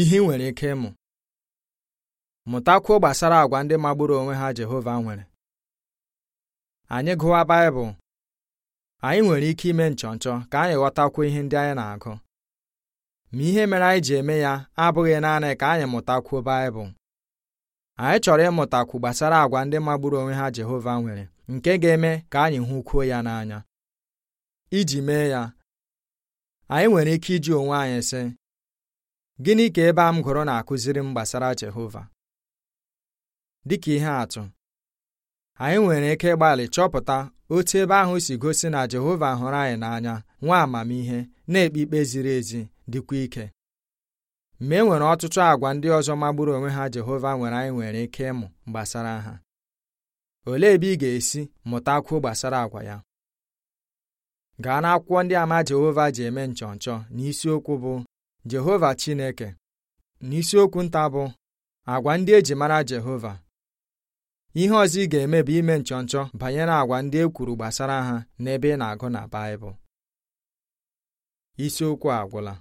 ihe ị nwere ike ịmụ mụtakwuo gbasara agwa ndị magburu onwe ha Jehova nwere anyị gụwa Baịbụl anyị nwere ike ime nchọnchọ ka anyị ghọtakwuo ihe ndị anyị na-agụ ma ihe mere anyị ji eme ya abụghị naanị ka anyị mụtakwuo Baịbụl anyị chọrọ ịmụtakwu gbasara àgwà ndị magburu onwe ha Jehova nwere nke ga-eme ka anyị hụkwuo ya n'anya iji mee ya anyị nwere ike iji onwe anyị sị Gịnị ka ebe a m gụrụ na-akụziri m gbasara Jehova? Dịka ihe atụ, anyị nwere ike ịgbalị chọpụta otu ebe ahụ si gosi na Jehova hụrụ anyị n'anya nwa amamihe na-ekpe ikpe ziri ezi dịkwa ike. Ma e nwere ọtụtụ àgwà ndị ọzọ magburu onwe ha Jehova nwere anyị nwere ike ịmụ gbasara ha. Olee ebe ị ga-esi mụtakwuo gbasara àgwà ya? Gaa n'akwụkwọ ndị ama Jehova ji eme nchọnchọ n'isiokwu bụ Jehova Chineke n'isiokwu nta bụ agwa ndị eji mara Jehova ihe ọzọ ị ga-eme bụ ime nchọ nchọ banyere agwa ndị e kwuru gbasara ha n'ebe ị na-agụ na Baịbụl isiokwu agwụla